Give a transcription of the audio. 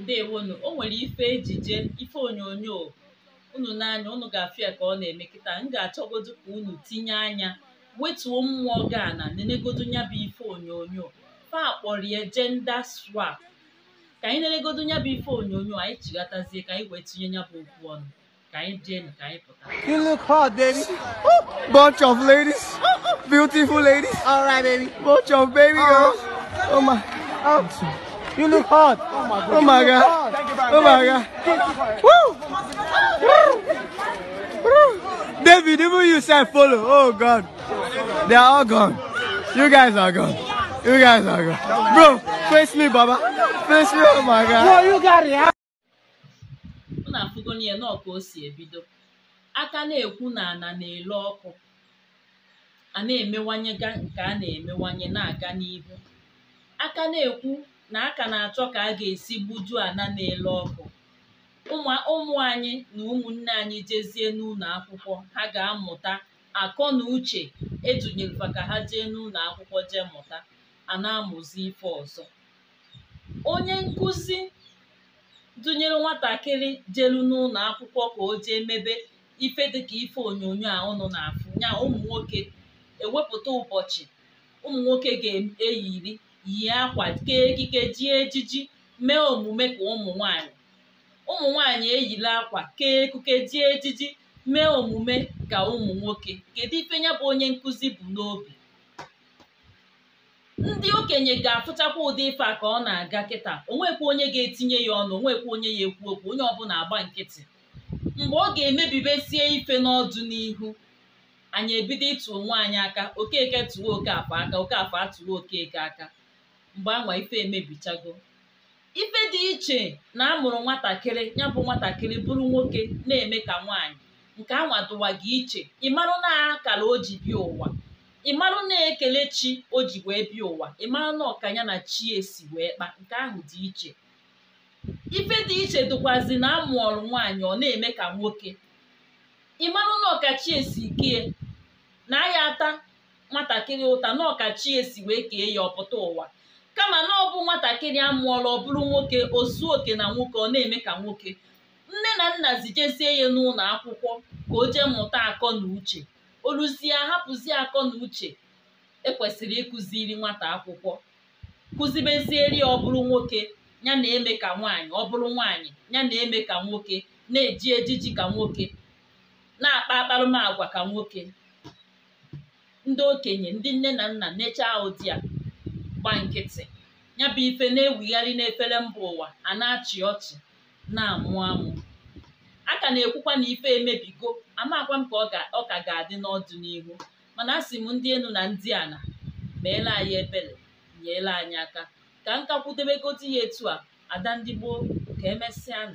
ǹdeèwonù o nwere ife ejije ife onyonyo unu n'anya unu gà-àfụ ya ọ na ème kịta m ga àchọgodu ka unu tinye anya wetuo mmụọ gị ana nenegodu nya bụ ife onyonyo fa akpọrọ ya jenda swap ka anyị nenegodu nya bụ ife onyonyo anyị chigatazie ka anyị wee tinye nya bụ okwu ọnụ ka anyị jee na ka anyị pụta you look hot baby oh, bunch of ladies beautiful ladies all right baby bunch of baby girls oh, my You look hot. Oh my god. Oh my god. Thank you oh my god. Woo! David, even you said follow. Oh god. They are all gone. You guys are gone. You guys are gone. Bro, face me, Baba. Face me. Oh my god. No, you got it. Mụ na-afụgo n'ihe nọọ o si ebido. Aka na-ekwu na ana na-ele ọkụ. A na-emewanye nke a na-emewanye na-aga n'ihu. Aka na-ekwu na a ka na-achọ ka a ga-esi gbujuo ana na-ele ọkụ ụmụ anyị na ụmụnne anyị jezie n'ụlọ akwụkwọ ha ga-amụta akọ na uche edunyelụkwa ka ha jee n'ụlọ akwụkwọ jee mụta a na-amụzi ife ọzọ onye nkụzi dụnyere nwatakịrị jelu n'ụlọ akwụkwọ ka o jee mebe ife dịka ife onyonyo a ụnụ na-afụ nya ụmụ nwoke ewepụta ụbọchị ụmụ nwoke ga-eyiri yi akwa kee ekike ejiji mee omume ka ụmụ nwanyị ụmụ nwanyị eyila akwa kee ekuke ji ejiji mee omume ka ụmụ nwoke kedu ife ya bụ onye nkụzi bụ n'obi ndị okenye ga-afụchakwa ụdị ife a ka ọ na-aga kịta onwekwa onye ga-etinye ya ọnụ onwekwa onye ya ekwu okwu onye ọbụla agba nkịtị mgbe ọ ga-emebibesie ife n'ọdụ n'ihu anyị ebido ịtụ onwe anyị aka okeke tụwa oke afọ aka oke afọ atụwa okeke aka mgbe anwa ife emebichago ife dị iche na amụrụ nwatakịrị ya bụ nwatakịrị bụrụ nwoke na-eme ka nwaanyị nke anwa gị iche ịmarụ na akara o ji ụwa ịmarụ na ekele chi o ji wee bịa ụwa ịmarụ na ọkanya na chi esi wee kpa nke ahụ dị iche ife dị iche dụkwazi na amụọrụ nwaanyị ọ na-eme ka nwoke ịmarụ na ọkachi esi kee, na ya ata nwatakịrị ụta na ọkachi esi wee kee ya ọpụta ụwa kama na ọ bụ nwatakịrị a mụọla ọ bụrụ nwoke o zuo oke na nwoke ọ na-eme ka nwoke nne na nna zijezie ya n'ụlọ akwụkwọ ka o jee mmụta akọ na uche oluzie hapụzie akọ na uche ekwesịrị ịkụziri nwata akwụkwọ kụzibezieri ya ọ bụrụ nwoke ya na-eme ka nwaanyị ọ bụrụ nwaanyị ya na-eme ka nwoke na-eji ejiji ka nwoke na-akpa akparụmagwa ka nwoke ndị okenye ndị nne na nna nechaa ụdị a gba nkịtị ya bụ ife na-ewigharị n'efere mba ụwa a na-achị ọchị na-amụ amụ a ka na-ekwukwa na ife emebigo amakwa m ka ọ ka ga-adị n'ọdụ n'ọdịnihu mana asị m ndị enu na ndị ana meela anyị ebere nyela anyị aka ka m ka kwudebegodi ya etu a ada ndị gboo ka emesịa